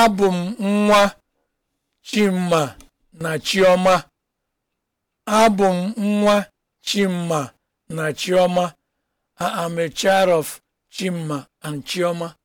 Abụ m nwa Chima na Chioma. Abụ m nwa Chima na Chioma. a child of Chima and Chioma.